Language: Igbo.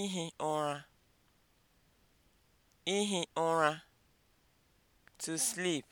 ihi ụra ihi ụra to sleep